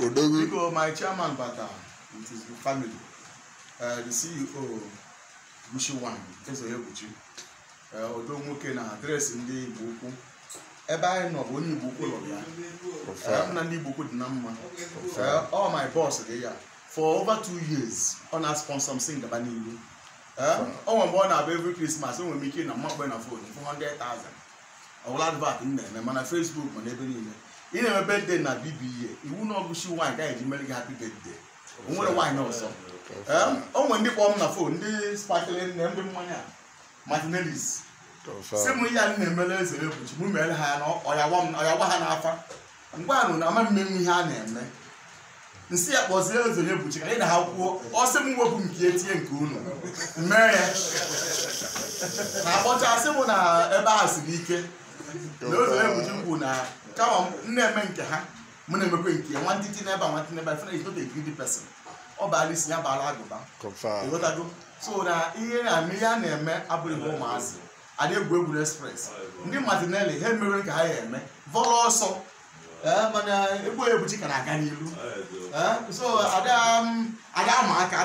Odogwu. Biko my chairman bata with uh, his family, uh, the CEO Mushiwan Ezoyebuchi, uh, Odo nwoke na adreesị ndị Igbo ukwu. Ebe anyị nọ bụ onye Igbo ukwu lọrọ ya. Nna uh, ndị Igbo ukwu dị na mma. All my boss dị ya. For over two years, ọ na-sponsor m si ngaba n'ihu. Ọ nwe mgbe ọ na-abụ every Christmas, enwere m ike na mmakpe na phone 400,000. Ọ wụla advat m na-eme mana Facebook ma n'ebe niile. ị na-eme bedde na bibiye iwu um, oh, na ọgụchi nwaanyị gaghị eji mere gị hapi bedde o nwere nwaanyị ọzọ o nwere ndị kpọm na fon ndị spakele nne ndị mmanya martinelis si m ihe anyị na-emere eze ebuchi m mere ha ya na ọya gwa ha n'afa ngwa anụ na ama mmenwu ihe a na-eme nsi ya kpọzie eze ebuchi ka anyị na ha kwuo ọ sị m wepụ nke etinye nke unu mee ya na akpọchasị m na ebe a siri ike na eze ebuchi m bụ na kama m na-eme nke ha m na-emekwe nke ya nwantiti n'ebe a nwantiti n'ebe a fena is not a ọ baala isi ya baala agụba ịghọtago so na ihe na-eme a na-eme abụghị ụmụazị adị egwu egwuregwu express ndị matinelli ha emere ka ha ya eme vọrọ ọsọ eh, mana egbu egbuchi ka na-aga eh, so ada ama um, aka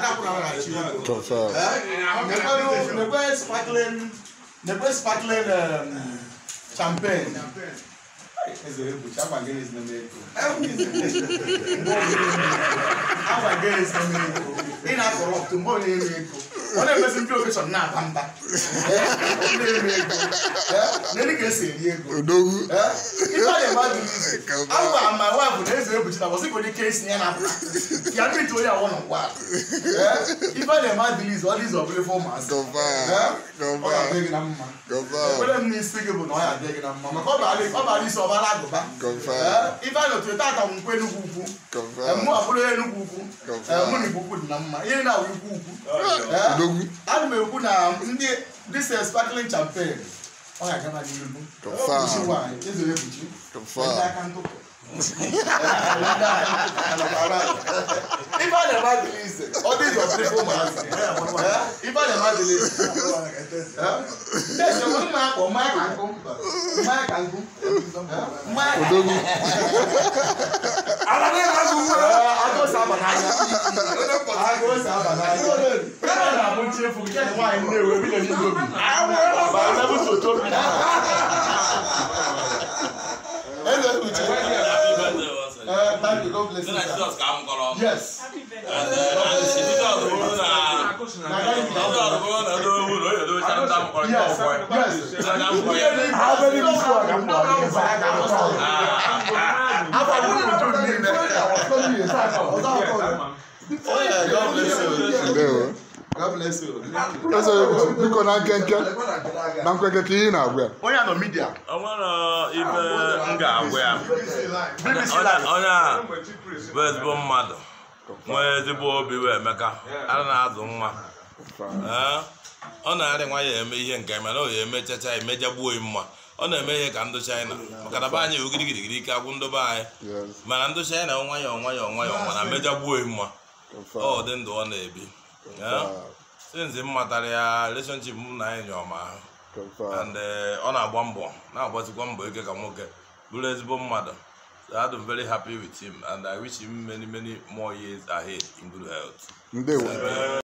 ada ezere buchi agba gịnị ego ọ na-emezi ndị okechọn na-aba mba nne ga-esi ego eh? ife a na-eme adịghị izu na eze ka esi ya na ya mmiri eh? ife a na-eme adịghị ọ dị izu ọbụla ife ụmụazị eh? ọ ga-adị gị na mma ekpere m n'isi gị bụ na ọ ga-adị gị na mma maka ọ bara isi ọbara agụba ife a na-otu tata m nkwe enugwu ukwu mụ abụrụ na na ló wí. alùpùpù èkó na ndị dis sparkling champagne ọ ga-aga na gị elu. kọfà ezere ebuchi. kọfà ndị aka ntụpụ. Ifeanyi amadịla ise ọ dị ịzọ pịrịfụ ụmụazị Ifeanyi amadịla ise. Tẹ̀sí ọ̀hún mma akpọ̀ mmanya ka nkụ mmanya ka nkụ mmanya ka nkụ. Odogwu. Ala dị n'azụ sábà n'anya agụụ sábà n'anya ọ na-abụ nche efu gị nwaanyị nnewe bi na ndị obi ma nabụ soto bi na eze uche Uh, thank you. God bless you. Jesus ka m kọrọ. Yes. Jesus bụrụ na Jesus bụrụ na ndị owu na onye dobe chara ndị amụkọrọ ndị ọgbọ ya. Yes. Ihe dị mkpa abụghị m isi ọga m kpọrọ ihe. Afọ abụghị m jụrụ niile. biko na nkenke na nkenke ka ihe na-agwa onye nọ midia onwere ibe m ga-agwa ya onye a bụ ezigbo mmadụ nwee ezigbo obi wee emeka a na-azụ nwa ọ na-arị nwa ya eme ihe nke mana o ya eme chacha emejagbuo mma ọ na-eme ihe ka ndụ chaịna maka na be anyị ogirigirigiri ike agwụ ndobe anyị mana ndụ chaịna ya nwayọọ nwayọọ mana mejagbuo mma ọ dị ndụ ọ na-ebi sinzi m ya relationship m na anyị nyọma and eh, ọ na-agba mbọ na agbazikwa mbọ ike ka nwoke bụrụ ezigbo mmadụ I'm very happy with him and I wish him many many more years ahead in good health.